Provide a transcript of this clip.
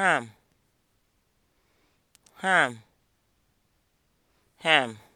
ham ham ham